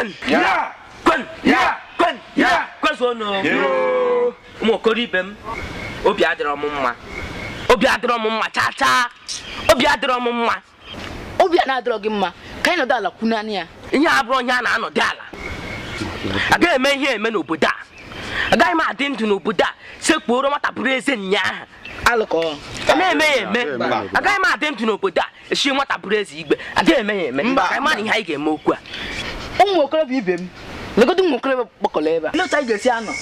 kwen ya kwen ya kwen ụmụ okoro ibe m obi adịrọ m mma obi m mma chaa chaa obi adịrọ m mma obi a na-adịrọ gị mma ka anyị nọdụ ala ya ihe a bụrụ onye a na-anọdụ ala agaghị eme ihe eme n'obodo a agaghị m adị ndụ n'obodo a sekpuoro nwata bụrụ ahụ eme eme m adị ndụ n'obodo a e igbe eme eme ụmụ okorobịa ibe m legodo ụmụ okorobịa kpọkọrọ ebe a ndị otu anyị ga-esi anọ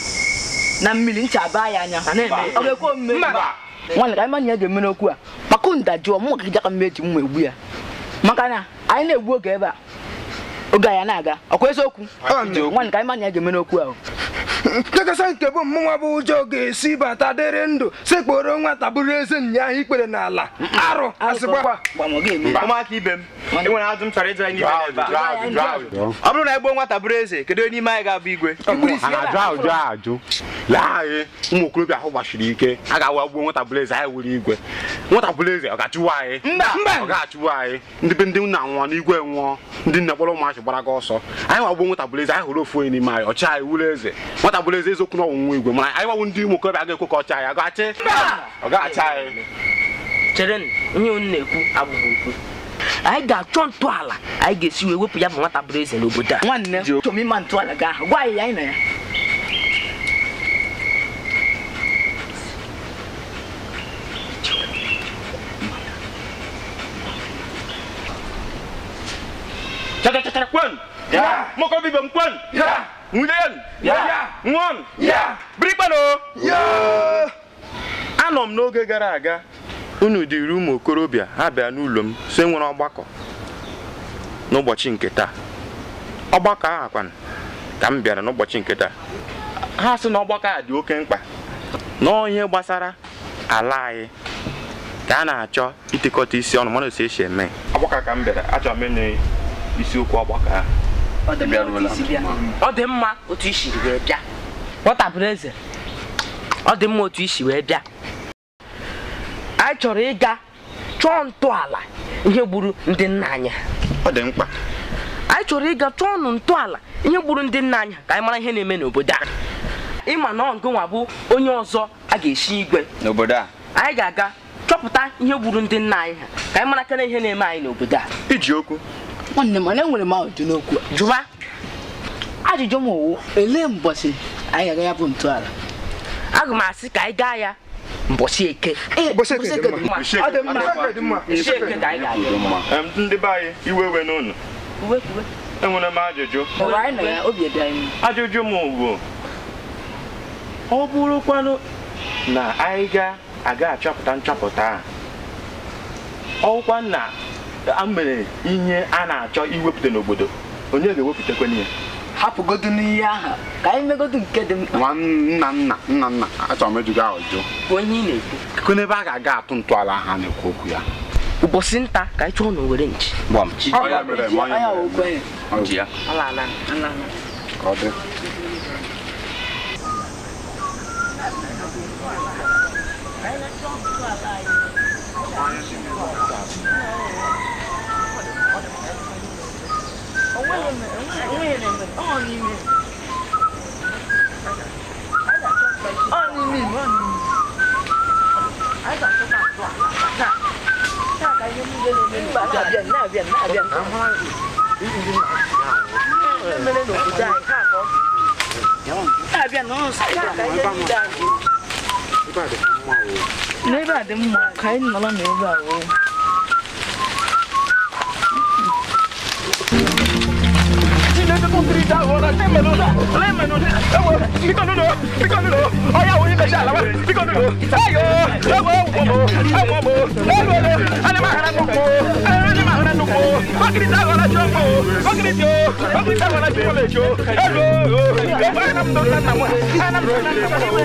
na mmiri ncha baa ya anya ọ ga-ekwe omume nwaanyị ka anyị manya ya ga-eme n'okwu a kpakụ ndajụọ mụ gị jaka mmeji mma egbu ya maka na anyị na-egbu oge ebe a oge anyị na-aga ọkwa eziokwu nwaanyị ka anyị manya ya ga-eme n'okwu ahụ nchekasa nke bụ mmụnwa bụ ụjọ ga-esi bata dịrị ndụ sekporo nwata bụrụ eze nya ahụ ikpere n'ala arụ asịgbakwa ọ bụrụ na egbuo nwata bụrụ eze kedu onye n'ime anyị ga-abụ igwe ajụ ajụ lee anyị e, ụmụ okorobịa ahụ gbachiri ike a ga-awa gbuo nwata bụrụ eze anyị wuru igwe nwata bụrụ eze ọ ga-achụwa anyị ọ ga-achụwa anyị ndị be ndị nna nwụọ n'igwe nwụọ ndị nne kpọrọ ụmụachị gbara gị ọsọ anyị wagbuo nwata bụrụ eze anyị hụrụ ofu onye n'ime anyị ọchị anyị wuru eze nwata atagbula eze eziokwu na ọnwụnwa igwe mana anyị nwawo ndị ụmụ okorobịa ga-ekwe ka ọ chaa ya gachi ọ ga-acha anyị chere ihe unu na-ekwu abụghị okwu anyị ga-achọ ntọala anyị ga-esi wee wepụ ya bụ nwata bụrụ eze n'obodo a nwanne chọmima ntọala gị ahụ gwa anyị ya anyị na ya Chata chata kwen. Ya. Moko bibam kwen. Ya. Ngulen. Nwa m! Birikpano! Anọ m n'oge gara aga unu dịrị ụmụ okorobịa ha bịa n'ụlọ m so nwere ọgbakọ n'ụbọchị nke taa ọgbakọ ahụ akwana ka m bịara n'ụbọchị nke taa ha sị na ọgbakọ a dị oke mkpa n'onye gbasara ala anyị ka a na-achọ itikọta isi ọnụ mana otu esi eme ọgbakọ ka m bịara achọrọ m ịnụ isiokwu ọgbakọ ahụ ọ dị mma otu i siri were bịa nwọtapụrụ eze ọ dị mma otu isi wee bịa anyị chọrọ ịga chọọ ntọala ihe gburu ndị nna anyị ọ dị mkpa anyị chọrọ ịga chọọ ọnụ ntọala ihe gburu ndị nna anyị ka anyị mara ihe na-eme n'obodo a ịma na ọgụ nwa bụ onye ọzọ a ga esi igwe n'obodo a anyị ga-aga chọpụta ihe gburu ndị nna anyị ha ka anyị mara kene ihe na-eme anyị n'obodo a iji okwu nwanne m enwere m ajụjụ n'okwu jụwa ajụjụ m owu elee mbọchị anyị ga-aga ya bụ ntọala aga m asị ka anyị gaa ya mbọsị eke ndị be anyị iwe iwe n'ụlọ enwere m ajụjụ ajụjụ m bụ ọ bụrụkwanụ na anyị ga-aga achọpụta nchọpụta a ọkwa na a mere ihe a na-achọ iwepụta n'obodo onye ga-ewepụtakwanụ ya hapụgodu n'ihe ahụ ka anyị megodu nke dị mkpa nwa nna nna nna nna achọrọ m ejugo ahụ jụ onye ị na-ekwu kekwe n'ebe a ga-aga atụ ntọala ahụ a na-ekwu okwu ya ụbọchị nta ka anyị chọọ na were nchi Thank you. biển này biển này biển này bên đây đủ dài khác có à biển nó sai cái cái dài lấy bà đừng mọc cái nó là nếu vào ṣá wọ́n lẹ́mẹ̀lódà lẹ́mẹ̀lódà ẹ̀wọ̀ bíkọ́nùdò bíkọ́nùdò ọ̀yà wo ilẹ̀ ṣá làwọn bíkọ́nùdò ẹ̀yọ́ ẹ̀wọ̀ wọ̀bọ̀ ẹ̀wọ̀ bọ̀ ẹ̀wọ̀ lọ alẹ́mọ̀ ara nù kó alẹ́mọ̀ ara nù kó bákìrì tá wọ́n lajọ́ mọ́ bákìrì tí o bákìrì tá wọ́n lajọ́ lè jó ẹ̀lọ́ ẹ̀wọ̀ anamdo sanamu anamdo sanamu ẹ̀wọ̀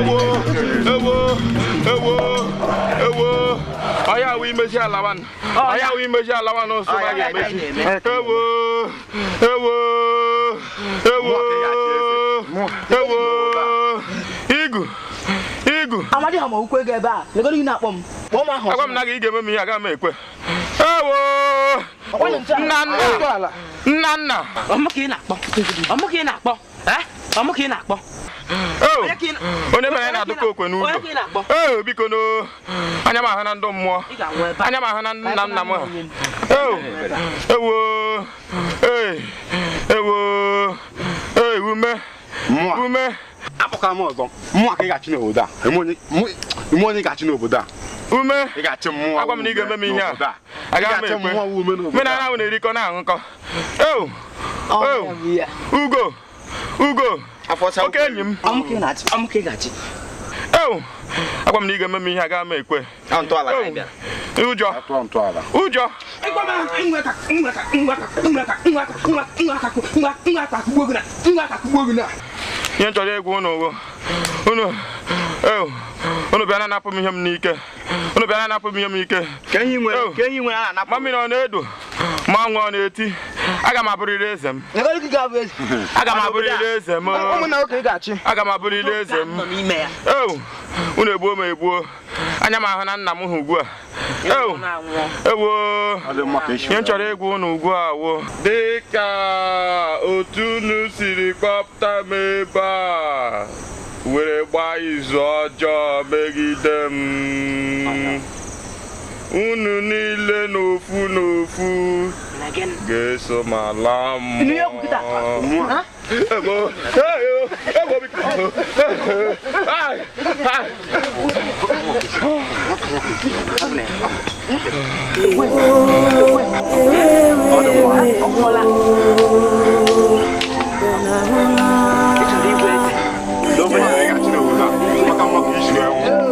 ẹ̀wọ̀ ẹ̀wọ̀ ẹ̀wọ̀ ẹ̀wọ̀. onye awụ imezi alawan onye awụ imezi alawan nso ma ga-emezi ewo ewo ewo ewo igu igu Amadi ha ma ukwe ga ebe a legoro ị na-akpọ m kpọọ m ahụ agwa m na ga-eme m ya aga m ekwe ewo nna nna nna nna ọmụ ị na-akpọ ọmụ ka ị na-akpọ Ọ oh, mụ oh, oh, ka ị na-akpọ? onye mere anyị na-adụka okwe n'ụlọ ee biko no anya m ahụ na ndụ mmụọ anya m ahụ na nna nna m Ewo! Ee! ewo ee ume ume akpọkara m ọzọ mmụọ ka ị ga-achị n'obodo a ime onye ga-achị n'obodo a ume agwa m na ị ga-eme m ihe a agaghị m ekwe menana ahụ na-erikọ na-aṅụkọ ugo ugo oke enyi m ewu agwa m na ị ga-eme m ihe a gaa m ekwe ụjọ ụjọ ngwa akakugbo gị na ihe nchọrọ egwu unu owo unu unu bịa na-anapụ m ihe m n'ike unu bịa na-anapụ m ihe m n'ike ma ọ na-edo ma ọnwụ ọ na-eti aga m abụrịrị eze m aga m abụrịrị eze m aga m abụrịrị eze m eu unu egbuo m egbuo anya m ahụ na nna m hụ ugbu a eu ewoo ihe m chọrọ ịgwa unu ugbu a wo dịka otu unu siri kpọpụta m ebe a were w b a a izu ọjọọ e g i d e m unu n i l e n'ofu n'ofu g e s o ma laa mmụọ Ọdụm ọkpọla Nobody got to know Fuck, I'm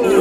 up, you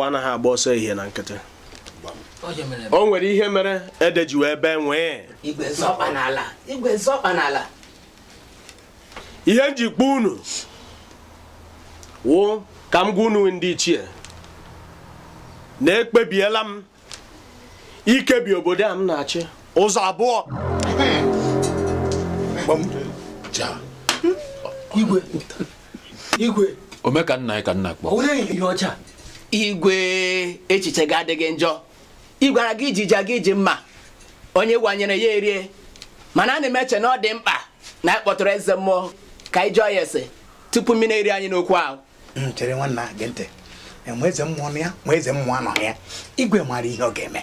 awọ anaghị agba ọsọ ehihie na nkịtị o nwere ihe mere ede ji wee bee nwee ihe njikpa unu wụ ka m gwa unu ndị ichie na ekpebiela m ikebi obodo a m na-achị ụzọ abụọ igwe igwe omekanna ka nna kpọ igwe echiche ga adịghị njọ ịgwara gị iji ja gị iji mma onye wanyere ya erie mana a na m eche na ọ dị mkpa na anyị eze mmụọ ka anyị jụọ ya ese tupu mmiri eri anyị n'okwu ahụ chere nwanna gị ntị nwe eze mmụọ nọ ya nwe eze mmụọ anọghị ya igwe maara ihe ọ ga-eme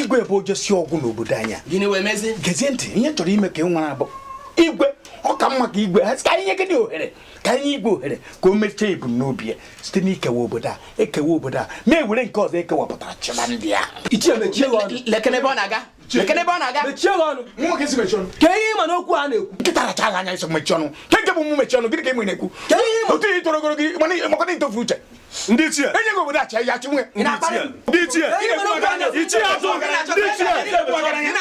igwe bụ ojosi ọgwụ n'obodo anya. gịnị wee mezi gezie ntị ihe chọrọ ime ka ị nwara bụ igwe ọ ka mma ka igwe ha ka anyị nye ohere ka anyị igwe ohere ka o mechaa ebumnobi ya site n'ikewa obodo a ekewa obodo a ma ewere nke ọzọ ekewapụtara chịba ndị a lekene ebe na-aga n'okwu a na-ekwu nkịta anya iso ọnụ ka nke bụ ọnụ gịnị ka na-ekwu otu ihe ntofu uche ndị enye gị obodo ya chi nwe ndị ndị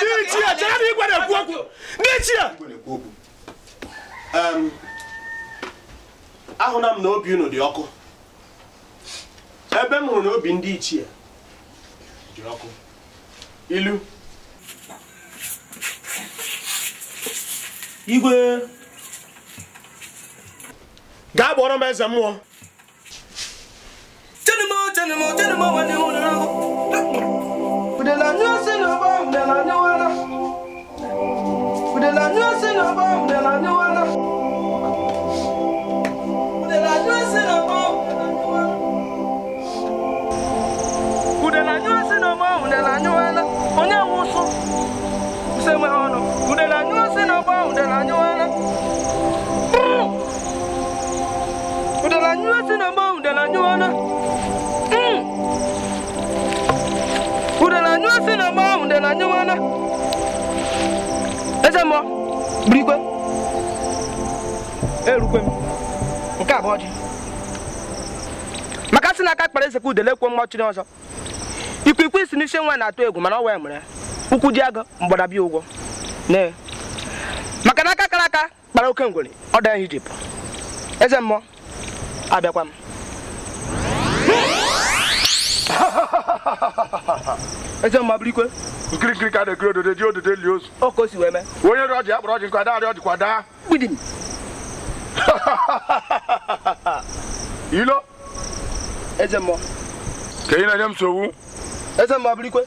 na ekwu okwu ndị ahụna m na obi unu dị ọkụ ebe m hụrụ na obi ndị ichie dị ọkụ ilu igwe gaa gbọrọ m eze mmụọ ụdịnanya si na ahụ ụgbọ ụdịnanya wara Udala nyusi na mau, udala nyuana. eze mmụọ burikwe erukwe m nke abụọ dị maka sị na aka kpara eze ka udele kwuo chiri ọzọ ikwikwii isi n'isi nwa na-atụ egwu mana ọ wee mere ụkwụ ji agụ mgbadabịa ụgwọ nee maka na aka kara aka kpara oke ngwere ọ daa Ijipt eze mmụọ abịakwa m eze mma bụrụ ikwe nkirikiri ka na-ekiri odode dị odode li ozu o ka o si wee mee onye rịọ ọjị ya kpọrọ ọjị nkwa darị ọjị kwa daa gbidim ilo eze mmụọ ka ị na-enye m nsogbu eze mmụọ bụrụ ikwe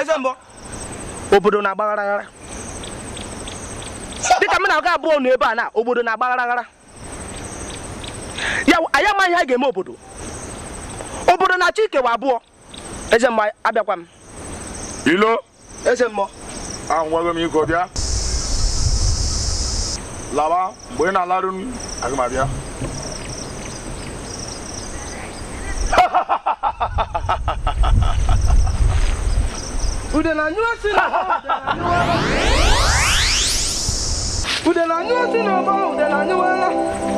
eze mmụọ obodo na-agbagharaghara dịka m na-aga abụọ n'ebe ebe a na obodo na-agbagharaghara ya anyị amaghị ha ga-eme obodo obodo na-achọ ikewa abụọ eze mmụọ abịakwa m ilo eze mmụọ ahụ nwago m iko bịa laba mgbe ị na-alarụ m aga m abịa ude na na anyụ osị ọba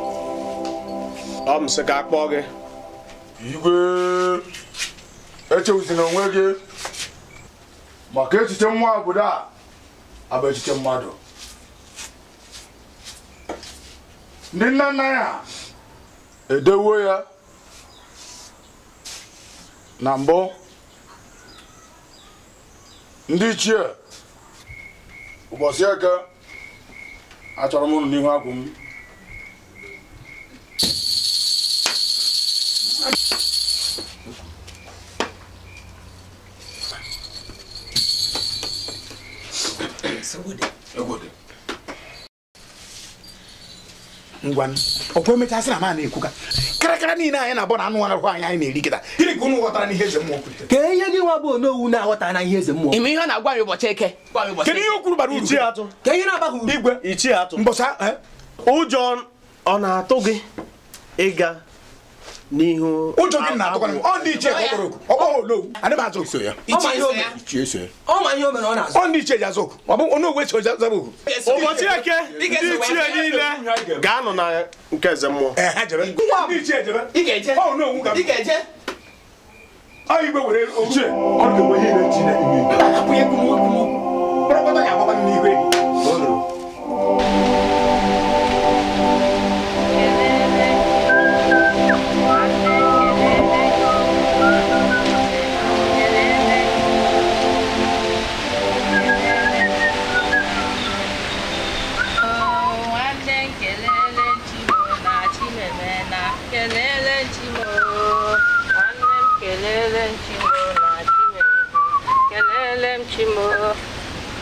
ọ m sị ka kpọọ gị igwe onwe gị maka echiche nwa obodo a abụ echiche mmadụ ndị nna nna ya edewo ya na mbụ ndị ichie ụbọchị eke achọrọ m n'ihu agwụ m ngwanụ ọkwa emechaa sị na ma na ekwuka karakara niile anyị na-abụ na anụ arụ anyị anyị na-eri kịta gịnị ka unu ghọtara n'ihe eze mmụọ ka ihe gị nwa bụ owu na-aghọta na ihe eze mmụọ ime ihe ọ na-agwa ya ụbọchị eke kedu ihe o kwuru bara uru atụ ka ihe na-agbaghị uru igwe ichie atụ mbọsa eh? ụjọ ọ na-atụ gị ịga n'ihu ụjọ gị na-atụkwana m ọ ndị ichie ka ọkpọrọ oku ọgbọghọ olowu ana m azụ so ya ichie so ya ọ ndị ichie ji azụ oku ọ bụ onye ogwe so zaba oku ụbọchị eke ndị ichie niile ga-anọ na nke eze mmụọ ọ onowu were ochie ọ ga-enwe ihe na-eji na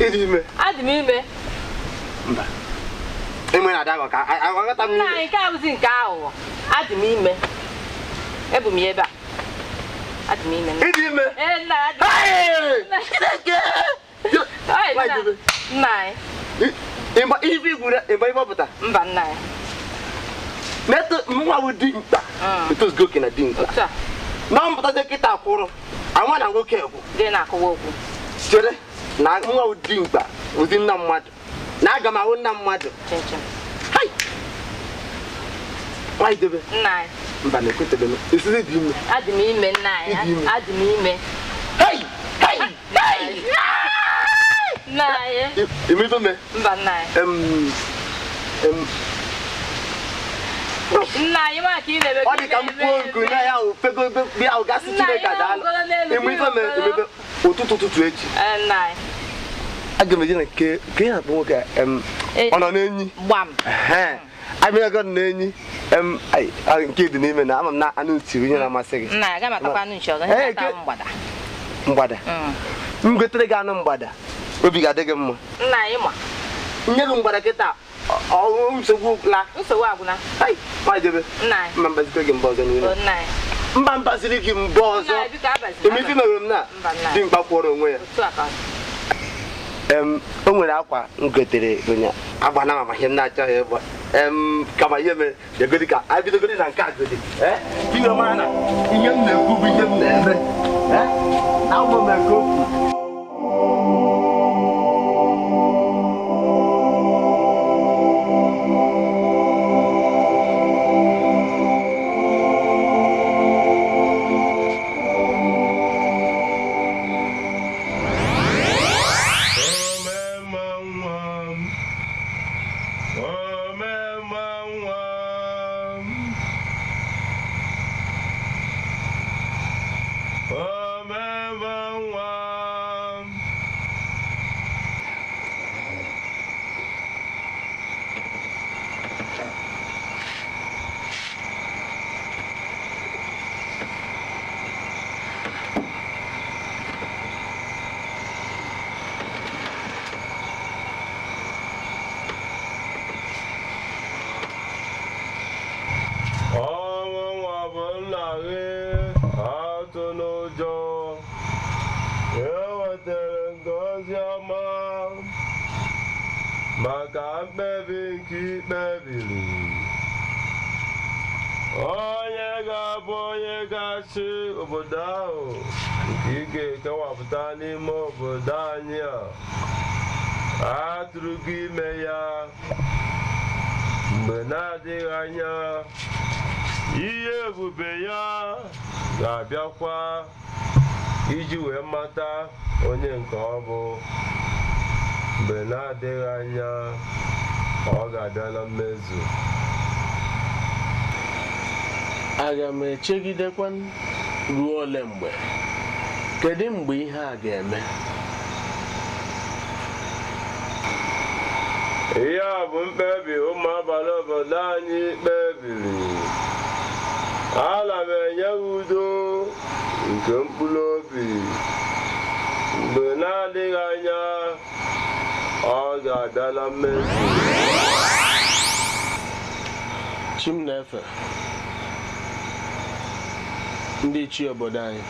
ịdị ime adị m ime mba ime na adagọ ka aghọta m ime nke abụzi nke aghụghọ adị m ime ebu m ya ebe a adị m ime ịdị ime e, nna mba nna ya nwa bụ dimkpa mm. etozugo na na mpụta na nwoke bụ. na-akụwa okwu na nwa ụdị mkpa ụdị nna mmadụ na aga m ahụ nna mmadụ mba na ekwetebe m esizi dị ime adị m ime nna anyị adị m ime nna anyị imebeme mba nna anyị nna anyị ma ka ị na-eme ọ dị ka mkpuo nku na ya ahụ fego ahụ gasị chineke adaala ime ife me emebe ụtụtụ ụtụtụ echi nna anyị aga m eje na nke nke ya bụ nwoke e, ọ nọ n'enyi abịago na-enyi nke dị n'ime na ama m na anụ ntiri mm. na-amasị gị mgbada mm. m gotere gị anụ mgbada obi ga-adị gị mma nye gị mgbada kịta nsogbu gwụla mba gị ọzọ emefe na dimkpa kwụọrọ onwe ya o nwere akwa m gotere agba agbana ma ihe m na-achọghị ịgba kama ihe mere egodi ka anyị bidogoro na nke a godi eh? ihe mara na ihe m na-ekwu bụ ihe m na-eme eh? na ụmụ m okwu ebube ya ga-abịakwa iji wee mata onye nke ọ bụ mgbe na-adịghị anya ọ ga-abịa na mmezu aga m echegidekwa ruo ole mgbe kedu mgbe ihe a ga-eme ihe a bụ mkpebi ụmụ abalị obodo anyị kpebiri ana m enye udo nke mkpụrụ obi mgbe na-adịghị anya ọ ga-abịa na mmezu chi na-efe ndị chi obodo anyị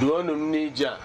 duonu m n'ije a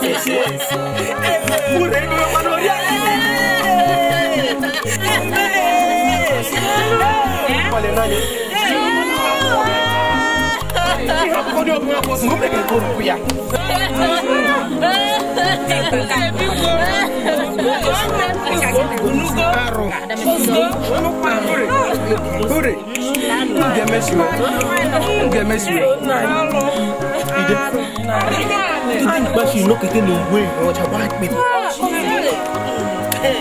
fisie mureno manoria palenani ihakukodi okuyakosi ngubekekurukuya Karo. Kure. Kure. Get messy, get messy. Ìdí ìgbà ṣe iná kété ni ìwé ìwọ̀n ọjà wá pè mí.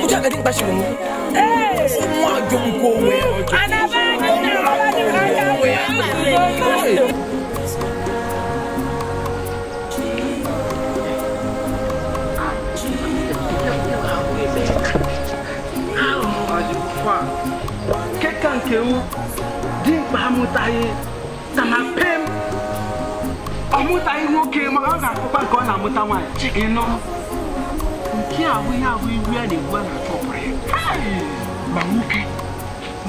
Ojú àgbẹ̀dẹ̀ ìgbà ṣe wọ̀n mú. Ọmọ àjọ ń kó owó ẹ̀ ọjọ́. Àdàbà ni ìjọba ti ká yà wẹ̀. Kẹ́kàǹkẹ́ wo. mkpa amụtaghị na na pem ọ nwoke ma ọ ga-akụkwa ka ọ na-amụta nwaanyị ịnọ nke ahụ ya ahụ ya na-egbu a na-achọ ọpụrụ ya ma nwoke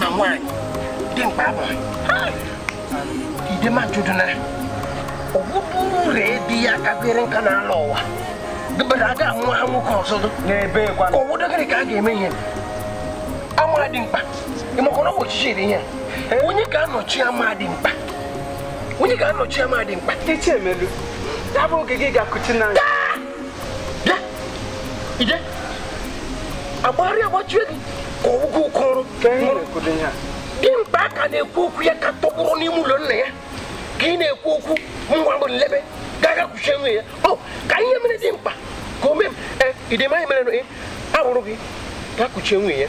na nwaanyị dị mkpa abalị idema di ya kabere nka n'ala ụwa dịbara ha nwoke ọzọ n'ebe ka ka a ga-eme ihe amara dị mkpa ịmakọ na ụbọchị chiri ihe onye ga-anọchi ama mkpa onye ga-anọchi ama dị mkpa iche emelu ya bụ oge gị ga-akụchi n'anya bịa ije agbagharị agbachie gị ka ụgwọ ụkọrụ dimkpa ka na-ekwu okwu ya ka tọgbụrụ n'ime ụlọ nna ya ka ị na-ekwu okwu nwa bụ nlebe gaga kwuchie nwe ya ọ oh, ka ihe mere dị mkpa ka o mee m eh, idemanya mere eh, abụrụ gị ga kụchie nwunye ya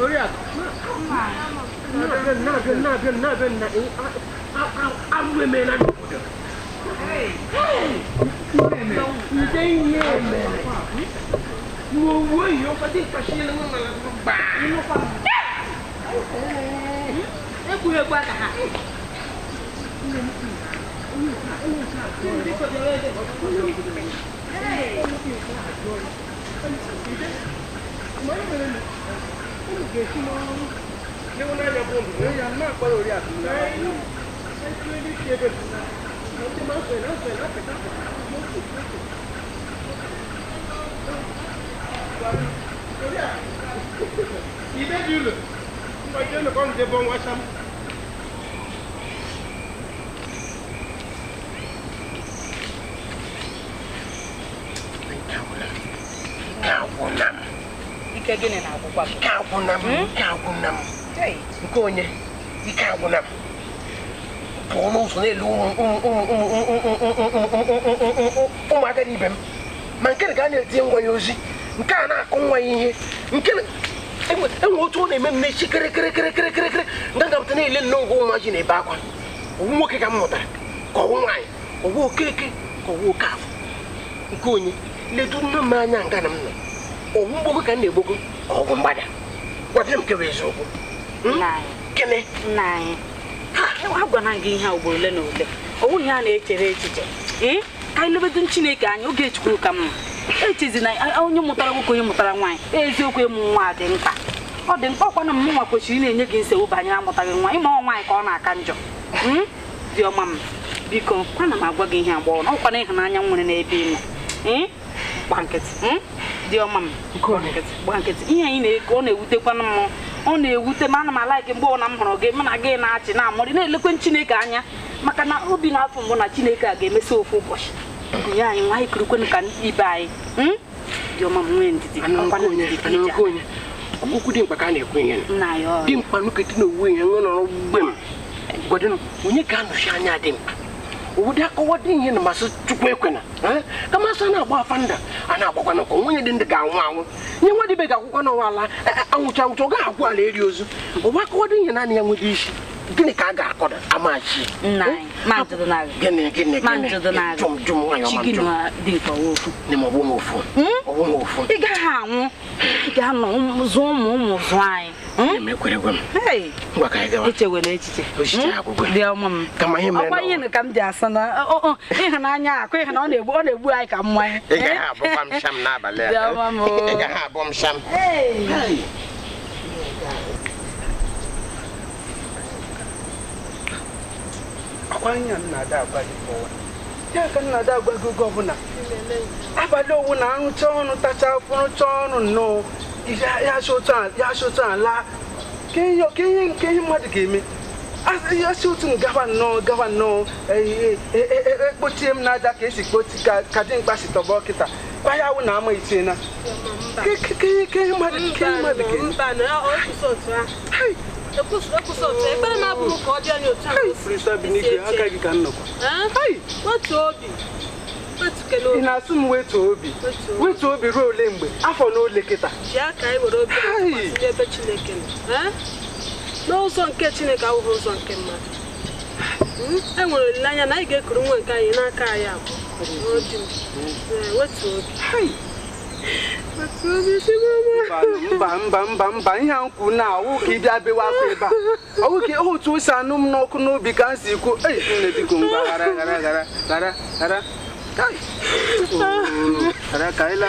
不是，那边那边那边那边那安安安安徽没那种的。你真爷们！我我有把这把西龙那个把你弄坏了。哎，不要管他。Hey! Ibe di ulu, mwa jenu kon de bon wacham. ike gịnị na-agwụkwa ike agwụna m ike agwụna m nke onye ike agwụna m pụọ n'ụzọ n'elu ụmụaka na m ma nke ga a na-etinye ngwa ya ozi nke a na-akụ nwa ya ihe nke enwe otu ọ na-eme m echi kịrịkịrịkịrịkịrịkịrị nga gapụta na-ele nne ngwa nwa ji na-ebe akwa owu nwoke ka m mụtara ka ọwụ nwaanyị ọwụ okeke ka ọwụ oke afọ nke onye ledu nne m anya nga na m nọ ọgwụ mgbọm ka m na-egboko ọgwụ mgbada gwabịa m kewa eziokwu gịnị Ha! E, anyị agwana gị ihe ugboro ole na ole ọ bụghị ha na-echere echiche ee ka anyị lebedo chineke anyị oge chukwu ka mma echezi na onye mụtara nwoke onye mụtara nwaanyị eziokwu ịmụ nwa dị mkpa ọ dị mkpa ọkwa na nwa kwesịrị na-enye gị nsogbu banyere amụtaghị nwa ịmụ nwaanyị ka ọ na-aka njọ hmm? dị ọma m biko ana m agwa gị ihe agbọghọ na ọkwa na ịhụnanya nwere n'ebe ị nọ gba nkịtị hmm? dị ọma m gba nkịtị ihe anyị na-eke ọ na-ewutekwana m ọ na-ewute m ana m alaiki mgbe ọna m hụrụ gị m na gị na-achị na-amụrị na-elekwe Chineke anya maka na obi na-afọ mbụ na Chineke a ga-emesi ofu ụbọchị nye anyị nwa anyị kirikwenụ ka ibe anyị hmm? dị ọma m nwee ndidi okwu dị mkpa ka a na-ekwu ihe dị mkpa nkịtị na owuwe ihe nwe nọrọ mgbe m gwadịnụ onye ka anọchi anya dị mkpa obodo akọwado ihe na masị chukwu ekwena ka masị a na-agba afa nda a na-agbakwa na nwenye dị ndị ga-anwụ anwụ nye nwa dịbe ga akwụkwọ n'ụwa ala anwụcha anwụcha ọ gaghị agwụ ala eri ozu ụwa akọwado ihe naanị ya nwere isi gịnị ka a ga-akọda amachi gịnị gịnị gịnị ị gaghị anwụ ị ga-anọ zụọ ụmụ ụmụ zụọ anyị ọkwa hmm? hmm? ihe ka m ji asa na ịhụnanya akụ ịhụ na ọ na-egbu ọ na-egbu anyị ka mmanya n'abalị a. ada nnada agbaghị ụwa ya ka nnada agbaghị oge ọbụla abalị owu na arụcha ọnụ tacha afụrụcha ọnụ nnọọ ya sụcha ala ka ihe nke ihe mmadụ ga-eme asi otu m gawa nnọọ gawa nnọọ ekpochie e, e, e, m n'aja ka esi kpochi ka dị mkpa si tọba kịta baya awụ na ama itiena ke ihe mmadụ ga-eme ekpere na-abụrụ ka ọ ị na-asụ m wetu obi wetu obi ruo ole mgbe afọ na ole kịta n'ụzọ nke chineke ahụghị ụzọ nke mmadụ hmm? e nwere olileanya na anyị ga-ekuru nwa nke anyị n'aka anyị abụọ wetu obi mba mba mba mba ihe a nkwu na ọwụ ka ị bịa bewe akwa ebe a ọwụ ka otu o anụ m n'ọkụ n'obi ka m si kwuo ei nne biko mgba ghara ghara ghara ghara ghara ghara bụ ghara ghara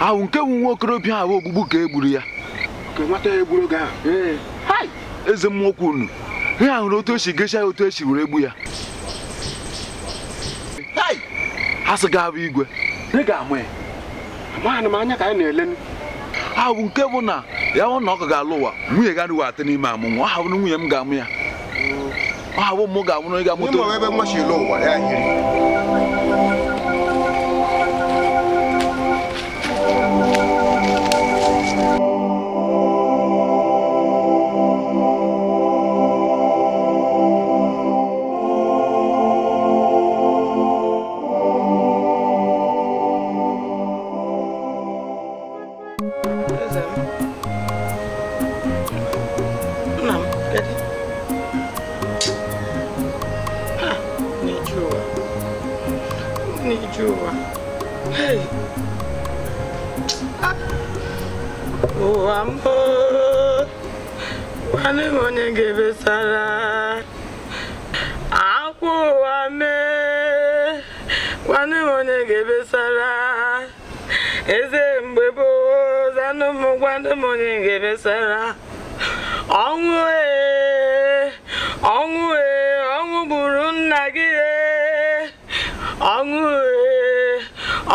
ahụ nke bụ nwa okorobịa ahụ ogbugbu ka e gburu ya eze mmụọ okwu unu ihe ahụrụ otu esi gesha ya otu esi were egbu ya ha sị ga-abụ igwe ahụ nke bụ na ya hụ na ọkụ ga-alụ ụwa nwunye ga anụwa atị n'ime amụ nwa ọ ha bụrụ nwunye m ga-amụ ya ọ ha bụ mụ ga-amụrụ amụ ịga ya. ga-ebesara akwa ụwa mee nwanne m ebesara eze ebesara ọnwụ ee ọnwụ e, ọnwụ gburu nna gị e. ọnwụ e,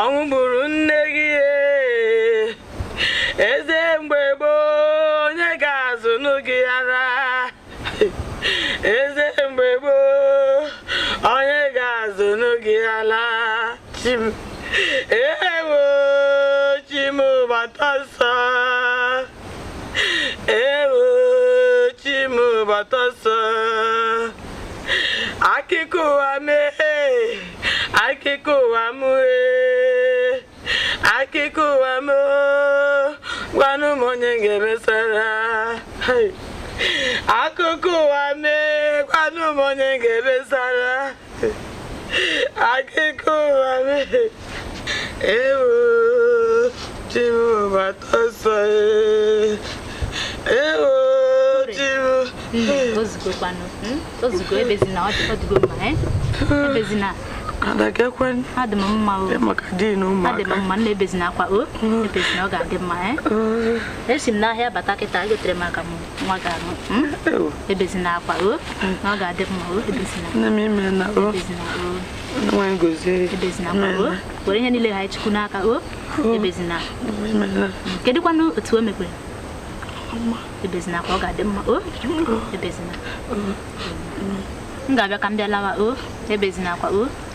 ọnwụ gburu nne gị eze mgbe gboo eze mgbe gboo onye ga-azụ n'oge ala ewo chimụbata ewo chimụbata nsọ akụkọ ụwa mee akụkọ ụwa mụee akụkọ ụwa moo gwanụ m onye ga-emesara akụkọ ụwa mee kwanụ m onye ga-emesara akụkọ ụwa mee ewu chimụbata ọsọ ewu hmm, hmm, mma eh? hmm. adagekwen adị m mma maka din mma ebezina akwa o ebezina ọ ga-adị mma esi m n'ahịa bata kịta egotere m aka m nwa ga ebezina akwa o ọ ga-adị mma o ebezina nne na ebezina akwa o were ihe niile ha n'aka o ebezina otu o ebezina akwa ọ ga-adị mma ebezina m ga-abịa ka m bịa o ebezina akwa o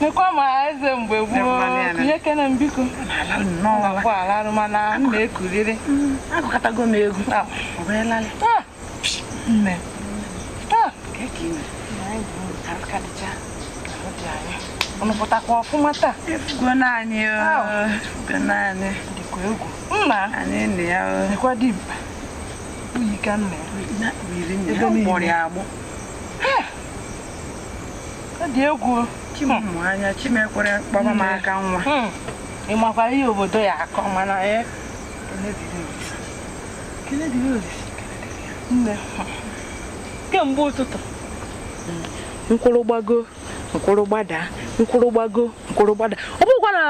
nekwa ma eze mgbe gboo nye m biko mana m na-ekuriri mm, agụkọtago m egwu ah. ah. nne unu ah. ọfụma taa dịkwa egwu dịkwa ọ dị egwu chimanya chimekwere kpọba m mm. aka nwa mm. ị makwara ihe obodo ya akọ mana e, kemgbe ụtụtụ nkwụrụ gbago nkwụrụ gbada nkwụrụ gbago nkwụrụ gbada ọ bụkwa na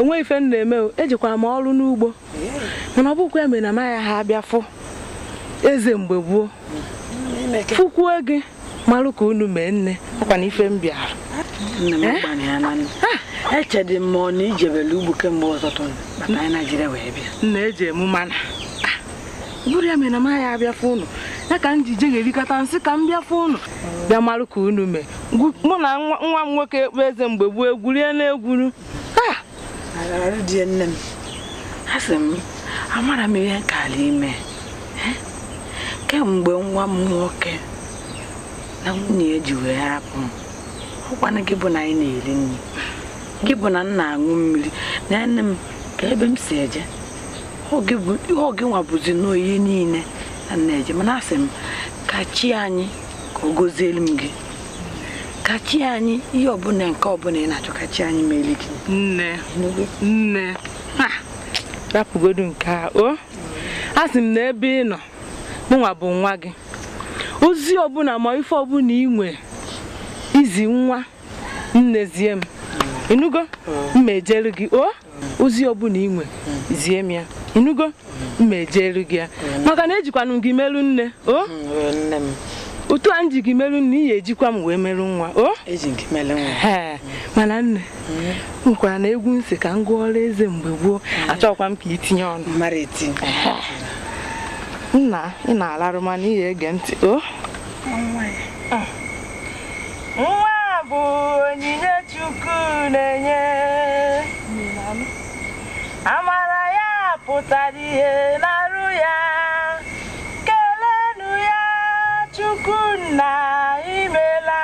onwe ife m na-eme ejikwara m ọrụ n'ugbo mana ọ bụkwa eme na ha abịa fụ eze mgbe gboo fụkwuo gị malụ ka unu mee nne ọkwa na ife m bịara echedị m ọ eh? na e ijebele ugbo kemgbe ọtụtụ maka anyị naijiria wee bịa nna eji emu mana ah, bụrụ ya mere na m ya abịafe ụnụ ya ka m ji je ga-erikọta nsị ka m bịafe ụnụ bịa malụ ka unu mee mụ na nwa m nwoke ekpe eze mgbe gboo egwurie na-egwuru ah! di nne m a sị m amara m ihe nke ala ime eh? kemgbe nwa m nwoke na nwunye ya ji wee hapụ m ọkwana gị bụ na anyị na-eri nri gị bụ na m na-aṅụ mmiri na nne m ka ebe m si eje oge nwa bụzi n'ihe niile na nna-eje mana asị m ka chi anyị ka ọ gọzielu m gị ka chi anyị ihe ọbụla nke ọbụla ị na-achọ ka chi anyị mere gị nne nne rapụgodu nke a o asị m na ebe ị nọ mụnwa bụ nwa gị ozi ọbụla ma ife ọbụla inwe izi nwa nne zie m ịnụgo mma ejelu gị o ozi ọbụla inwe zie m ya ịnụgo mma ejelu gị ya maka na ejikwanụ gị merụ nne o otu a m ji gị merụ nne iyi ejikwa m wee merụ nwa o ee mana nne nkwara hmm. na egwu nsị ka m ọrụ eze mgbe gboo hmm. achọkwa m ka itinye ọnụ nna ị na ala mana ị ege ntị o nwa bụ onyinye chukwu na-enye amara ya pụtara ihe n'arụ ya kelenu ya chukwu na imela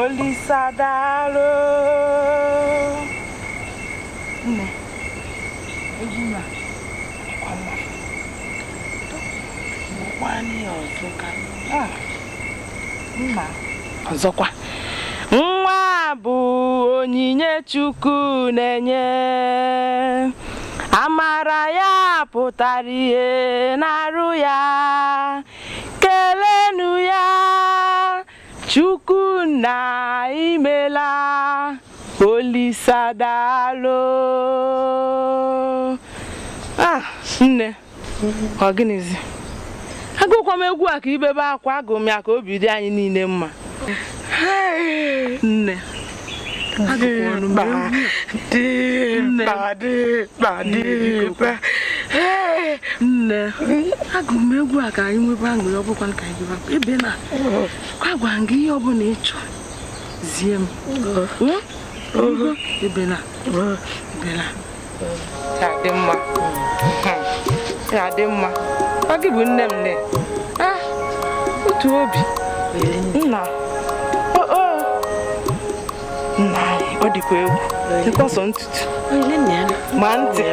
olisadalụ Ah, ọzọkwa nwa bụ onyinye chukwu na-enye amara ya pụtara ihe na-arụ ya kelenu ya chukwu na imela olisadalo ah, nne ọ gịnịzi agụkwa m egwu a ka ibebe akwa agụ m ya ka obi dị anyị niile mma nne nne agụrụ m egwu a ka anyị nwebe aṅụrị ọbụkwa ka anyị bebakwa ebe na kwa gwa gị ihe ọbụla ị chọrọ zie m ebe na ebe na ya dị mma ya dị mma ọ gị bụ nne m nne ah, otu obi nna nna ọ dịkwa egwu sọ ntutu ma ntị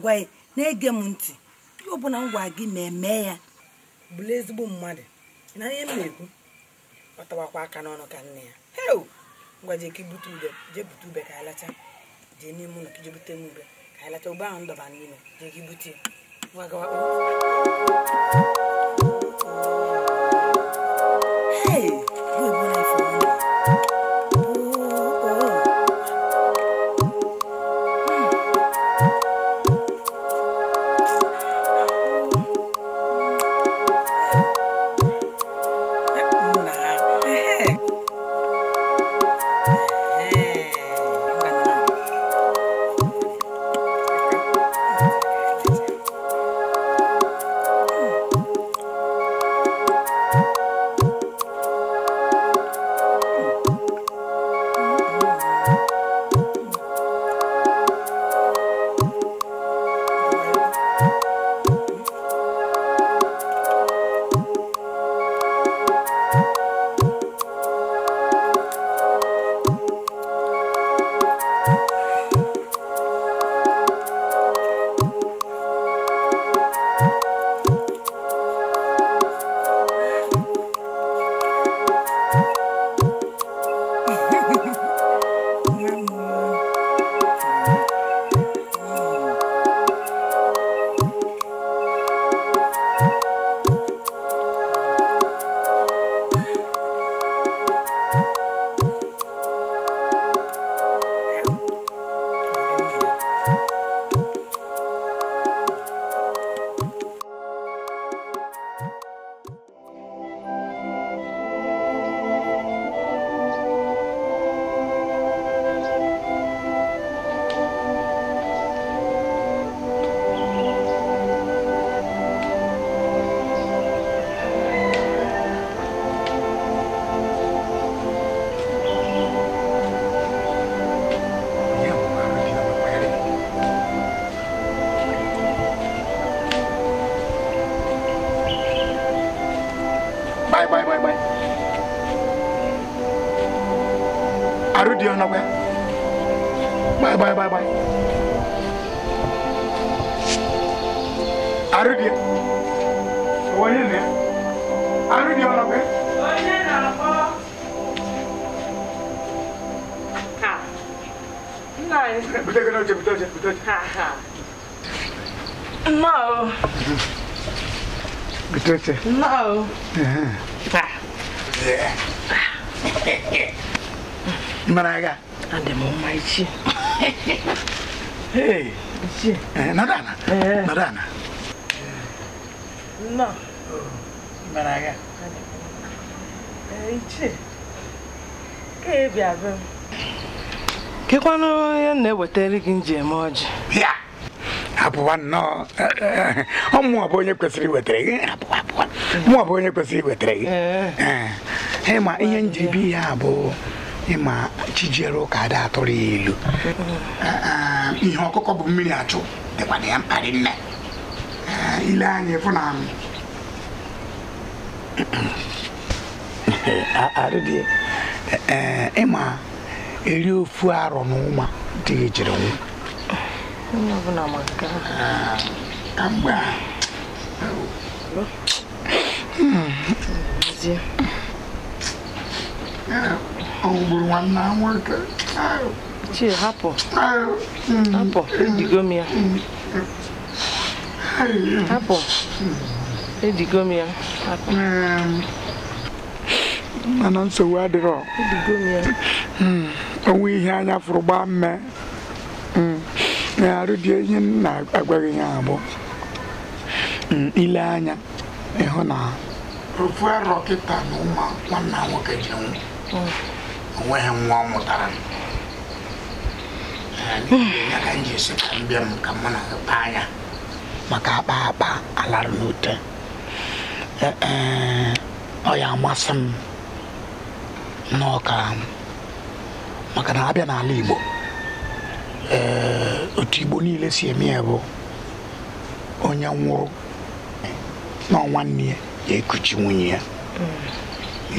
na-agwa na-ege m ntị ihe ọbụla m gwa gị ma eme ya bụrụ ezigbo mmadụ na ihe m na-ekwu ọ tawakwa aka n'ọnụ ka nne ya heo ngwa jee ka ibute ube jee ube ka alacha jee n'ime ụlọ ka jee bute m ube ka alacha ube ahụ ndọba n'ime jee ka ibute ya gawa sister? No. Uh-huh. Yeah. Maraga. And the mom, my chi. Hey. Chi. É, eh, Nadana. Eh. Nadana. É. No. Maraga. Eh, chi. Que bia Que Ke kwano ya na wetere que nje eme ọjị. Ya. Hapụ nwa nnọọ. Ọ mụ abụ onye que iwetere gị Mụ abụ onye kwesịrị iwetara gị ịma ihe njibi ya bụ ịma chijere ụka ada atụrụ ya elu eh, eh, ihe ọkụkọ bụ mmiri achụ dịkwa na ya mkparị nne ile anya ịfụ na ịma eri ofu arọ na ụma dị ejiri nwụ kamgbe a ọgbụrụ nwanne nwoke chi hapụ hapụ ejigo m ya hapụ ejigo m ya mana nsogbu adịrọ onwe ihe anya fụrụ gbaa mme na arụ dị ihe na-agwaghị ya abụọ. ile anya ịhụ na ofu arọ kịta na ụmụ nwanna nwoke ji nwụ onweghị nwa ọ mụtara ya ka m ji esi ka m m ka mụ na kpa anya maka akpa akpa alara n'ute e, e, ọ ya amasị m n'ọka maka na abịa n'ala Igbo otu Igbo niile si eme ya bụ onye nwụrụ na nwanne ya ga-ekuchi nwunye ya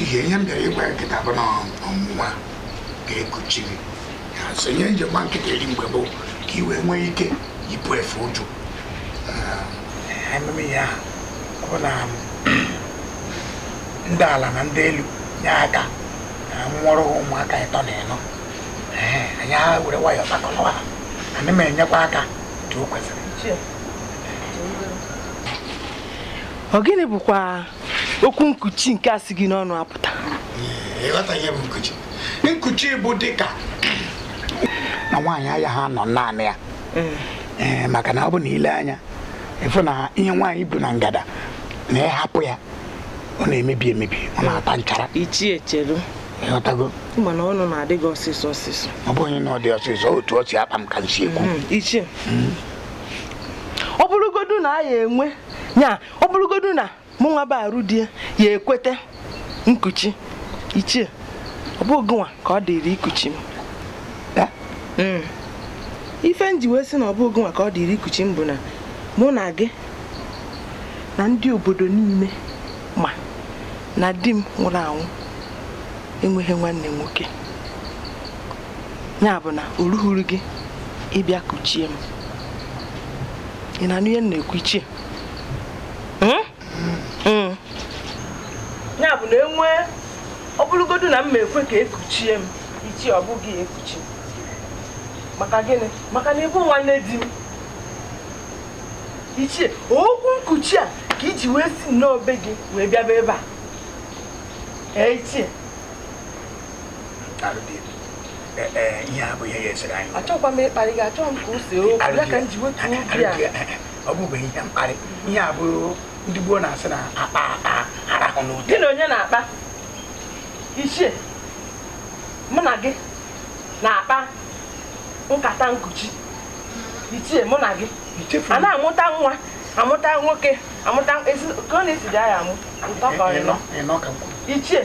ihe ihe m bịara ịgwa ya bụ na ga-ekuchi gị ya sonye njem nkịta eri mgbe bụ ka iwe nwee ike yipụ efe ụjụ ememe ya bụ na ndị ala na ndị elu nye aka nwụrụ ha ụmụaka ịtọ na ịnọ anyị were nwayọọ takọrọ ha ana m enyekwa aka otu o kwesịrị ọ gịnị bụkwa okwu nkuchi nke a si gị n'ọnụ apụta nkuchi bụ dịka na nwaanyị anya ha nọ naanị ya maka na ọ bụ na ile anya ịfụ na ihe nwaanyị bụ na ngada na ịhapụ ya ọ na-emebi emebi ọ na-ata nchara ichie chelu ịghọtago mana ọnụ na-adị ọsịsọ ọ na dị ọsịsọ otu ọ si akpa m ka nsi ekwu hmm, hmm. ọ bụrụgodu na a ya enwe Nyaa ọ bụrụgodu na mụ nwa bụ arụ ya ekweta nkuchi ichie ọ bụghị nwa ka ọ dịrị ikuchi m hmm. ife njiwe wee sị na ọ bụghị nwa ka ọ dịrị ikuchi m bụ na mụ na gị na ndị obodo niile ma na di m nwụrụ anwụ enweghị nwanne nwoke ya bụ na o ruhuru gị ịbịa kuchie m ị na m na-ekwu ichie ya bụ na enwe ọ bụrụgodu na m ma ekwe ka ekuchie m ichi ọ bụghị ekuchi maka gịnị maka na ịbụ nwanne di m ichie okwu nkuchi a ka iji wee si nnọọ gị wee bịaba ebe a ichie ịkparị gị achọghị ya a ọ ndị gboo na-asị na akpa akpa arahụ n'ụdị gị na onye na-akpa ichie mụ na gị na-akpa nkata nkuchi ichie mụ na gị a na-amụta nwa amụta nwoke amụta ka ọ na-esi ya amụ ụtọ ka ọ ka ichie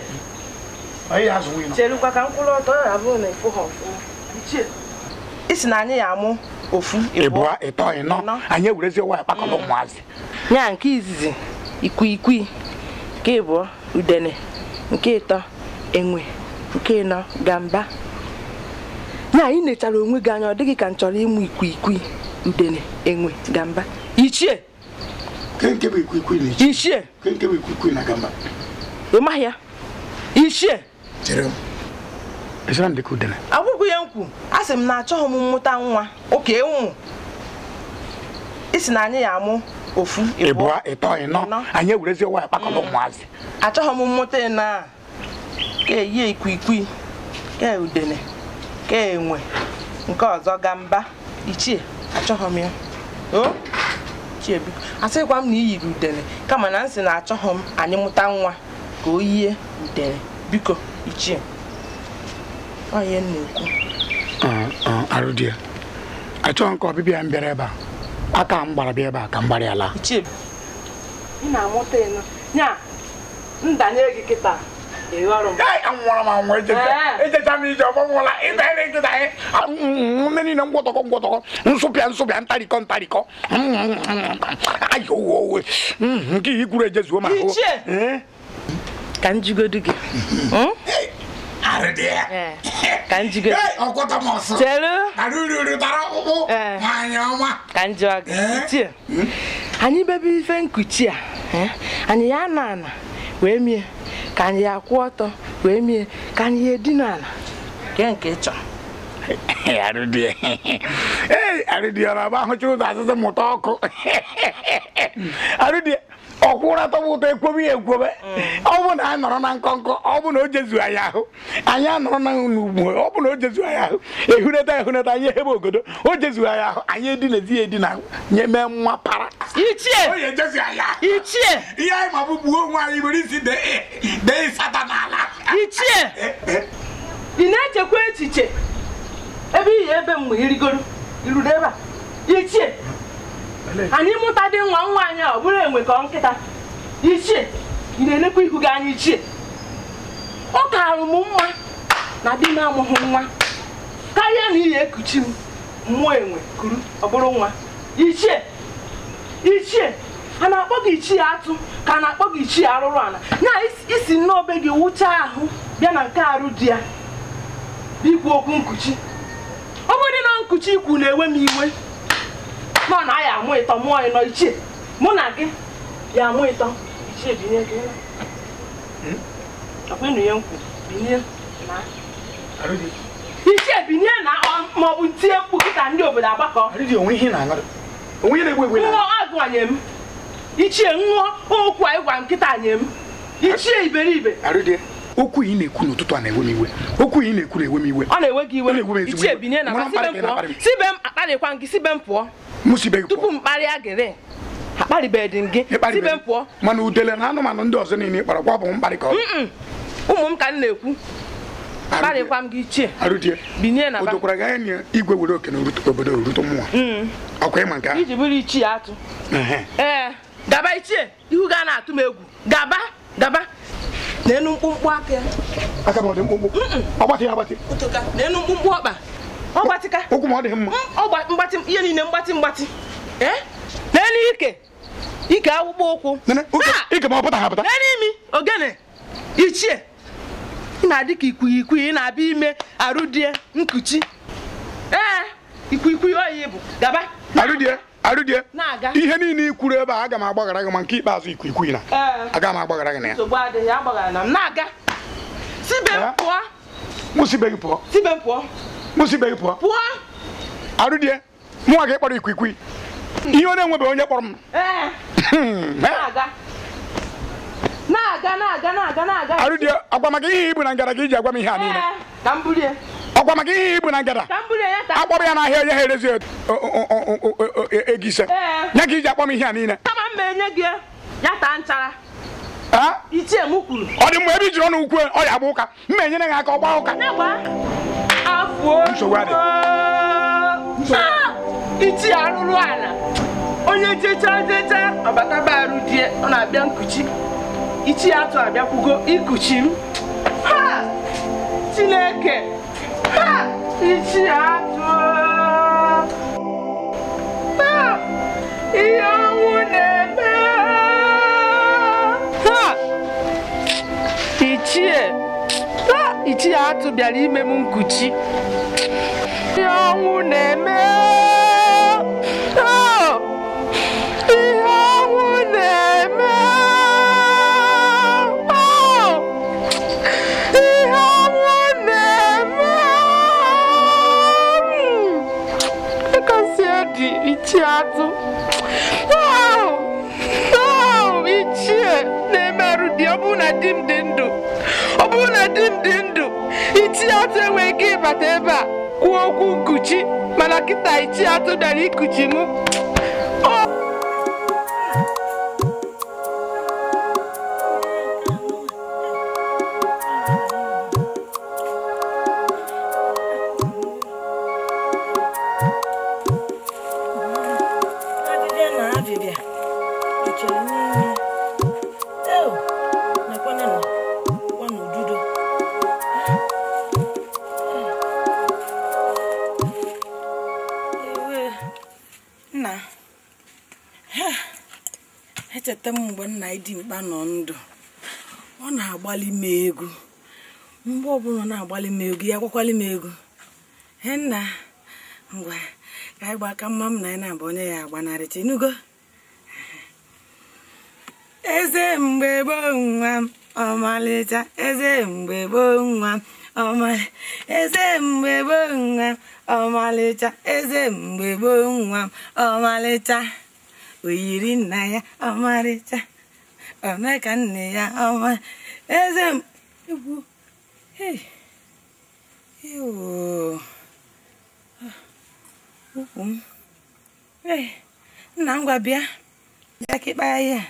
cherukwa ka m ọtọ ya abụrụ na ịfụ ha ọfụma ichie isi na anyị ya amụ ofu eto, ịtọ ịnọ anyị ewurezi ụwa akpakọrọ mm. ụmụazị nya nke izizi ikwiikwi nke ịbụọ udene nke ịtọ enwe nke ịnọ gamba nya anyị nechara onwe gị anya ọ dịghị ka nchọrọ chọrọ ịmụ ikwiikwi udene enwe gamba ichie ichie ị maghị ya ichie agwụgwụ ya nkwu a sị m na achọghị m mmụta nwa oke enwu isi na anyị ya amụ ofu ịbụọ ịtọ ịnọ anyị ewurezi ụwa kpakọrọ mm. ụmụazị achọghị m mmụta ịnọ a ka eyi ikwikwii ka udene ka enwe nke ọzọ gamba ichie achọghị m ya o biko asịkwa m na i yiri udene kama na nsị na achọghị m anyị mụta nwa ka o yie udene biko ichie onye na-ekwu a achọghị nke ọbịbịa mbịara bịara ebe a aka m gbara bịa ebe a ka m gbara ala ndanye gị kịta m m ije niile ngwọtọkọ ngwọtọkọ nsụpịa nsụpịa ntarịkọ ntarịkọ ayi owe nke ihe ejezuo ka gị hmm? ka njige ka njọ ga anyị bebe ife nkuchi a anyị ya na ana wee mie ka anyị ya kwụ ọtọ wee mie ka anyị ya edina ala nke nke ịchọ arụdie ọ na-agba ahụcha ụzọ azụzụ mụta ọkụ arụdie ọkwụra tọba ụtọ ekwobe ya ekwobe mm. ọ bụ na anyị nọrọ na nkọnkọ ọ bụ na o jezu anyị ahụ anyị anọrọ na n'ugwu ọ bụ na o jezu anyị ahụ ehuneta ehuneta anyị ehebe ogodo o jezu anyị ahụ anyị edinazi ya edina nye mee nwa para ichie ichie ihe anyị ma bụ gbuo onwe anyị nwere isi dee ịsata n'ala ichie eh, eh. ị na-echekwa echiche ebe ị ihe ebe mgbe irigoro iruru ebe a ichie anyị mụta dị nwa nwa anyị ọ bụrụ enwe ka ọ nkịta ichie ị na-elekwa ihu gị anya ichie ọ karụ m mma na di na-amụghị nwa karịa na iyi ekuchi m mmụọ enwe kuru ọ bụrụ nwa ichie ichie a na-akpọ gị ichie atụ ka a na-akpọ gị ichie arụrụ ala na isi n'obe gị wụcha ahụ bịa na nke arụ di ya bikwu okwu nkuchi ọ bụrụ dị na nkuchi ikwu na-ewe m iwe nọ na ya amụ ịtọ mụọ ịnọ ichie mụ na gị ya amụ ịtọ ichie binye gị ọkpenu ya nkwu binye na ichie binye na ma ọ bụ tie mkpu kịta ndị obodo agbakọ ṅụọ agụanye m ichie ṅụọ okwu anyị gwa nkịta nye m ichie iberibe okwu ị na-ekwu n'ụtụtụ a na-ewe m iwe okwu ị na-ekwu na-ewe m iwe ọ na-ewe gị iwe ichie binye na sibe m pụọ sibe m akparịkwa gị sibe m pụọ tupu m kparịa gịrị akparịbeghị m gị tibe m pụọ mana udele na anụmanụ ndị ọzọ niile kpara gwa bụ mkparị ka ụmụ m ka m na-ekwu kparịkwa m gị ichie binye na odokwara gị anya na igwe were oke na obodo rute mmụọ ọkwa ịma nke iji bụrụ ichie atụ ee gaba ichie ihu ga na-atụ m egwu gaba gaba na enu mkpụmkpụ aka ya aka m ọ dị mkpụmkpụ ọgbatị ya agbatị na enu mkpụmkpụ ọkpa ihe niile mgbatị mgbatị e? n'elu ike ike akpụkpọ ụkwụ n'imi ogene ichie ị na-adị ka ikwighị ị na-abịa ime arụdie nkuchi ee ikwikwii oyi bụ gaba arụdie arụdie ihe niile ikwuru ebe a aga m agbaghara gị ma nke ikpeazụ na e. aga m agbaghara gị na ya pụọ mụsị ibe pụọ pụọ die kpọrọ ikwikwi ihe ọ na onye kpọrọ m arụ die ọgwa maka ihe ibu na ngada ka iji agwa m ihe a niile ọgwa maka ihe ibu na ngada akpọrọ ya n'ahịa onye ha erezi ego ise nye ka iji akpọ m ihe a niile ọ dị mgbe ebe i jiri ọnụ ukwu ọ ya agba ụka mma enyere gị aka ọ gbaa ụka nsogbu adị iti arụrụ ala onye jecha jecha ọbataba arụ di ọ na-abịa nkuchi ichi ya atụ abịakwugo ikuchi m chineke ichi atụ ihe ọnwụ ichie atụ bịara ime m nkuchi ihe ọnwụ na-eme oh! ihe ọnwụ na-eme oh! ihe ọnwụ na-eme hmm. ịkasi edi ichie atụ oh! ichie na-emerụ di ọ bụrụ na di dị ndụ ọ bụrụ na di dị ndụ ichie atụ enweghị ike ịbata ebe a kwuo okwu nkuchi mana kịta ichie atụ bịara ikuchi mụ nna Idimkpa nọ ndụ ọ na-agbalị m egwu mgbe ọbụla na-agbalị m egwu ya gwakwalị m egwu he nna ngwa ka anyị aka mma m na anyị na-abụ onye ya agbanarịcha inugo eze mgbe gboo nwa m ọmalịcha eze mgbe gboo nwa m eze mgbe gboo nwa m ọmalịcha eze mgbe gboo nwa m ọmalịcha oyiri nna ya ọmarịcha ka nne ya ọma eze m! egwu ukwu oh. ah, m nna ngwa bịa bịa ka ịkpaya ihe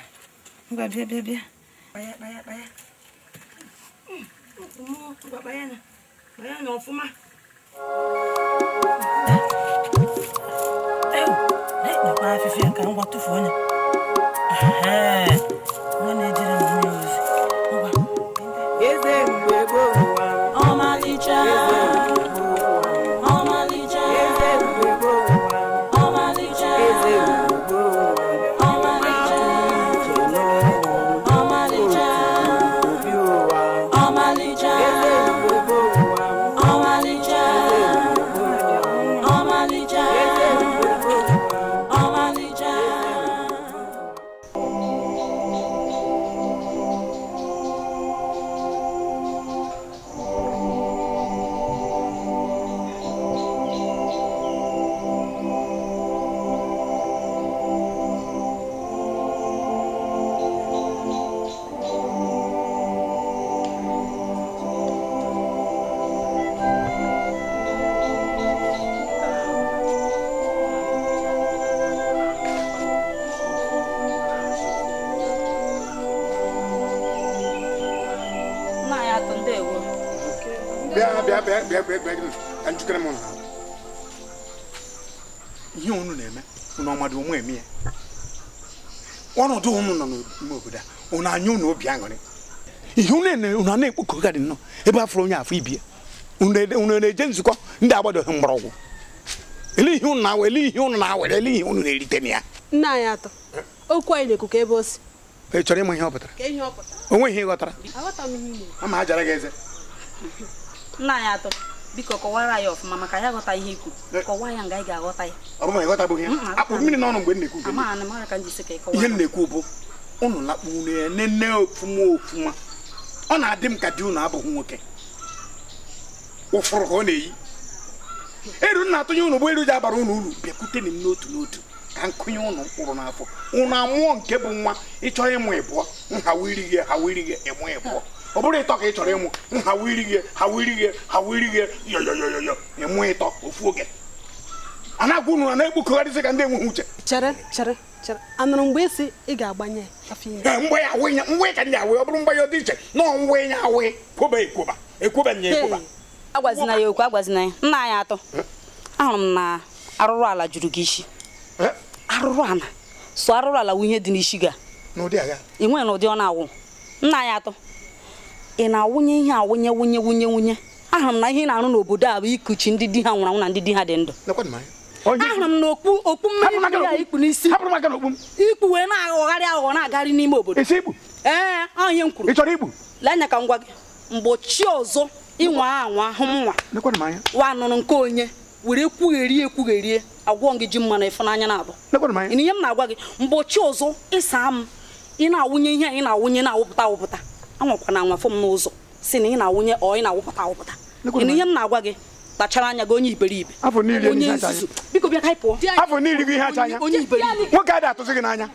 ngwa bịa bịa bịa kpaya kpaya kpaya ngwa hmm, kpaya na kpaya na ọfụma afịfịa ka ngwa tụfuo onye anyị unu obi aṅụrị ihe unu a na-ekpokọgadị nnọọ ebe afọrọ onye afọ ibi unu e, e na-eje nzukọ ndị agbadoghị mgbọrọgwụ ele ihe unu na-awere ele ihe unu na-awere ele ihe na-erite na ya nna okwu anyị na ebe o si ị chọrọ ịma ihe ọ pụtara onwe ihe ama nna ya ọfụma maka ya ghọta ihe ikwu ya nga ga-aghọta ya ọ ị ghọtabụghị ya akpụ mmiri n'ọnụ mgbe m na-ekwu ihe m na-ekwu bụ unu lakpu unu ya nene ofuma ofuma ọ na-adị m ka di unu abụghị nwoke ụfụrụ ka ọ na-eyi eru nna atụnye unu bụ eru ji abara unu uru bịakwute m n'otu n'otu ka nkụnye unu mkpụrụ n'afọ unu amụọ nke bụ nwa ịchọ ịmụ ịbụọ nhawa irighe hawa irighe ịmụ ịbụọ ọ bụrụ ịtọ ka ị chọrọ ịmụ nhawa irighe hawa irighe hawa irighe yoyoyoyo ịmụ ịtọ ofu oge a na-agwa unu na ka ndị enweghị uche chere chere chere anụrụ mgbe esi ị ga-agbanye eh, mgbe ya awụ ya mgbe ka ndị awụ ọ bụrụ mgbe ya dị iche na ya awụ kwoba ekwoba ekwoba nye ekwoba agwazina ya okwu agwazina ya nna anyị atọ eh? ahụrụ m na arụrụ ala juru gị isi eh? arụrụ ala so arụrụ ala wụ dị n'isi gị ị nwere na ụdị ọ na-awụ nna anyị atọ ị na-awụnye ihe awụnye wụnye wụnye wụnye ahụrụ na ihe na-arụ n'obodo a ikuchi ndị di ha nwụrụ na ndị di ha dị ndụ ahụrụ m na okpu okpu mmiri ya ikpu n'isi ikpu wee na-aghọgharị aghụghọ na-agagharị n'ime obodo ee ọ m kwuru ị chọrọ igbu lenya ka m gwa gị mgbochi ọzọ ịnwa anwa ahụ m nwa wa nụrụ nke onye were kwugherie ekwugherie agwọ gị ji mmanụ ịfụnanya na-abụ ihe m na-agwa gị mgbochi ọzọ ịsa m ị na-awụnye ihe anyị na-awụnye na-awụpụta awụpụta anwakwana anwafụ m n'ụzọ si na ị na-awụnye ọ ị na-awụpụta awụpụta ihe m na-agwa gị kpachara anya gị onye iberibe onye nzuzu biko bịa ka anyị pụọ afọ niile gị ihe acha anya onye iberibe nwoke adị atụzi gị n'anya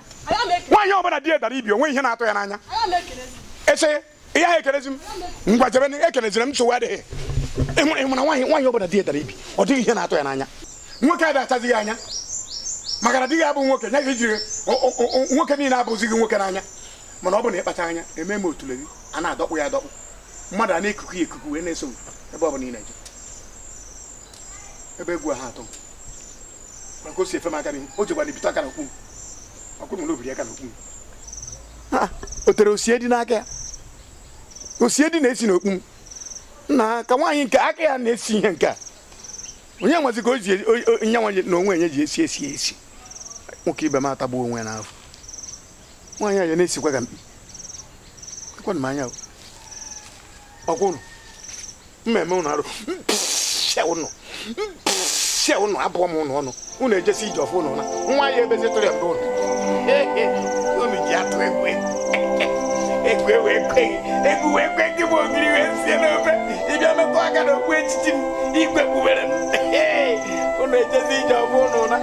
nwaanyị ọbụla di ya dara ibi onwe ihe na-atụ ya n'anya eche ihe ahụ ekelezi m ngwajebe ekelezire m nsogbu adịghị ịmụrụ ịmụrụ nwaanyị nwaanyị ọbụla di ya dara ibi ọ dịghị ihe na-atụ ya n'anya nwoke adị atazi gị anya maka na di gị abụ nwoke nya gị jiri nwoke niile abụzi gị nwoke n'anya mana ọ bụ na ịkpacha anya eme m otule gị a na-adọkpụ ya adọkpụ mmadụ a na-ekuku ya ekuku wee na-eso ebe ọ bụla ị na-eje ebe egwu ha atọ maka o si efe m aka n'ihu o jekwa n'ibite aka n'okwu m ọkụ na olobiri aka n'okwu m o tere osie dị n'aka ya osie dị na-esi n'okpu m na ka nwaanyị nke aka ya na-esi ihe nke a onye nwazi ka o ji e, nye nwaanyị na onwe enye ji esi esi esi nwoke ibe m atagbuo onwe ya n'afọ nwaanyị a ya na-esikwa ka mkpi ekwenụ m anya ọkwụnụ mmemme ụnụ arụ ụnụ sie ụnụ abụọ m ụnụ ejesi ije ụnụ na nwa ya ebe ụnụ unu ji atụ egwu gị bụ ogiri wee sie n'ofe ịbịa metụ aka na okpu echichi m igwe kpubere m ụnụ ejesi ije ọfụ ụnụ na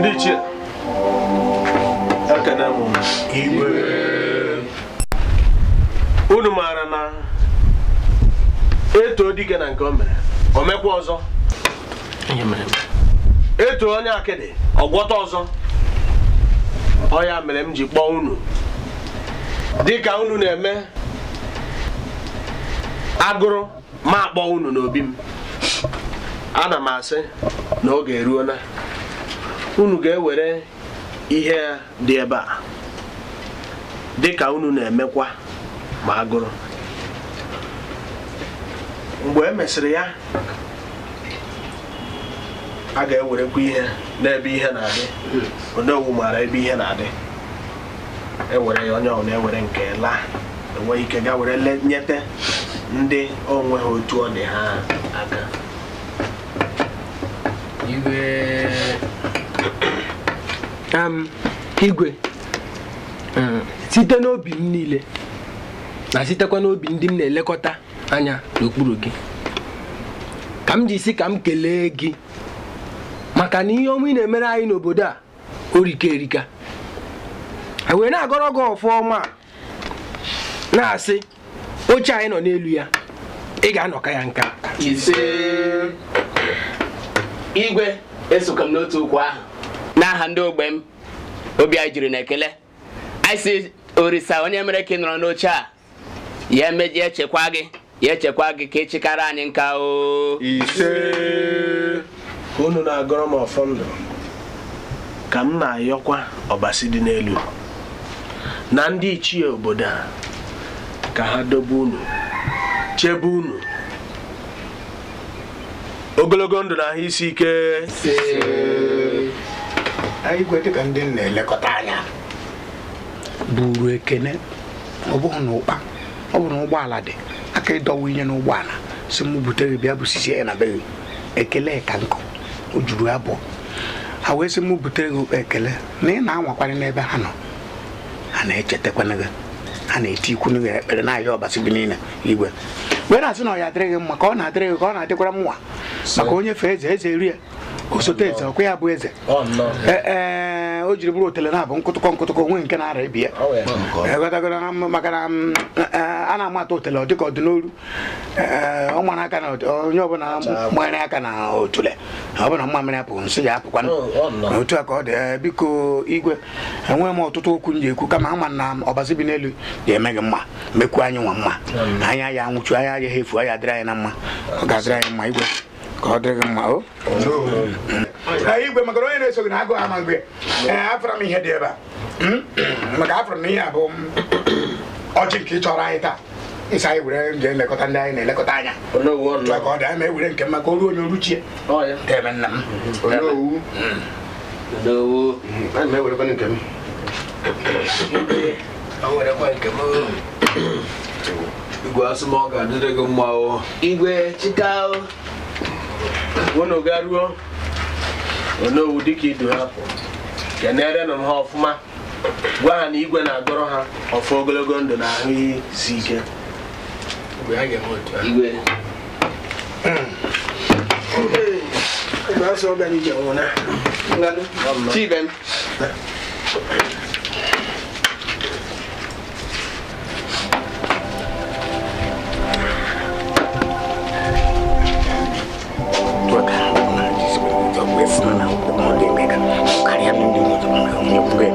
ndị ichie aka na mụ unu maara na eto dike na nke o mere o mekwa ọzọ eto onye akịdị ọgwọta ọzọ ọ mere m ji kpọọ unu dịka unu na-eme agụrụ ma akpọ unu n'obi m ana m asị na oge eruola unu ga-ewere ihe dị ebe a dị ka unu na-emekwa ma agụrụ mgbe e mesịrị ya a ga-ewerekwa ihe n'ebe ihe na-adị ọgwụ maara ebe ihe na-adị ewere ya onye ọbụla ewere nke laa enweghị ike ga were nyete ndị onwe ha otu ọ dị ha aka igwe um, site n'obi m niile na sitekwa n'obi ndị m na-elekọta anya n'okpuru gị ka m ji si ka m kelee gị maka na ihe onwe ị na-emere anyị n'obodo a orika erika e wee na-agọrọ gị a na-asị oche anyị nọ n'elu ya ị ga-anọka ya nka ise igwe esoka m n'otu okwu ahụ n'aha ndị ogbe m obi anyị juru na ekele orisa onye mere ka ị nọrọ n'oche a ya ya echekwa gị ya echekwa gị ka ịchịkara e anyị nka o ise ka unu na-agọrọ m ọfọ ndụ ka m na-ayọkwa ọbasi dị n'elu na ndị ichie obodo a ka ha dobe unu chebe unu ogologo ndụ na ahụ isi ike igwe dịka ndị na-elekọta anya buru ekene ọ bụghị na ụkpa ọ bụ na ụgbọala dị aka ịdọwa inye n'ụgbọala si m butere bịa bụsisi ya na be ekele ka nkụ o juru abụọ ha wee sị m butere gị ekele na ị na-anwakwarị n'ebe ha nọ ha na-echetakwana gị ha na-eti ikwu n'ihi ekpere na-ayọ ọbasi gị niile igwe wee na-asị na ọ ya adịrịghị mma ka ọ na-adịrịghị ka ọ na-adịkwara m maka onye fee eze eze rie osote eze ọkwa ya bụ eze ee e, o jiri bụrụ otele na-abụ nkụtụkọ nkụtụkọ onwe nke na-ara ebi ya e, maka na e, a na-amata otele ọ dịka ọ dị n'olu ọ mara aka na onye ọbụla mmanya aka na otule ọbụla mmamịrị apụ nsị ya apụkwa otu a ka ọ dị biko igwe enwe m ọtụtụ okwu m ji ekwu kama ama na ọbazi bi n'elu ga-eme gị mma mekwu anyị nwa mma anya ya nwụchu anya ya ha efu anya dịrị anyị na mma ọ ga-adịrị anyị mma igwe ka ọ dịghị mma o igwe maka onye na-eso gị na agụ ama Ee, afụrụ m ihe dị ebe a maka afụrụ m ihe a abụ ọchị nke ị chọrọ anyị taa ịsa anyị were nje elekọta ndị anyị na-elekọta anya maka ọ dị anya ma ewere nke mma ka o ruo onye oruchie ebe nna m onowu onowu ana m ewerekwana nke m ewerekwa nke m igwe asụmọ ga-adịrị gị mma o igwe chịta unu garuo onowu dịka idu ha pụ kenerenụ ha ọfụma gwa ha na igwe na-agọrọ ha ọfụ ogologo ndụ na ahụ ihe si ike igwe 你不会。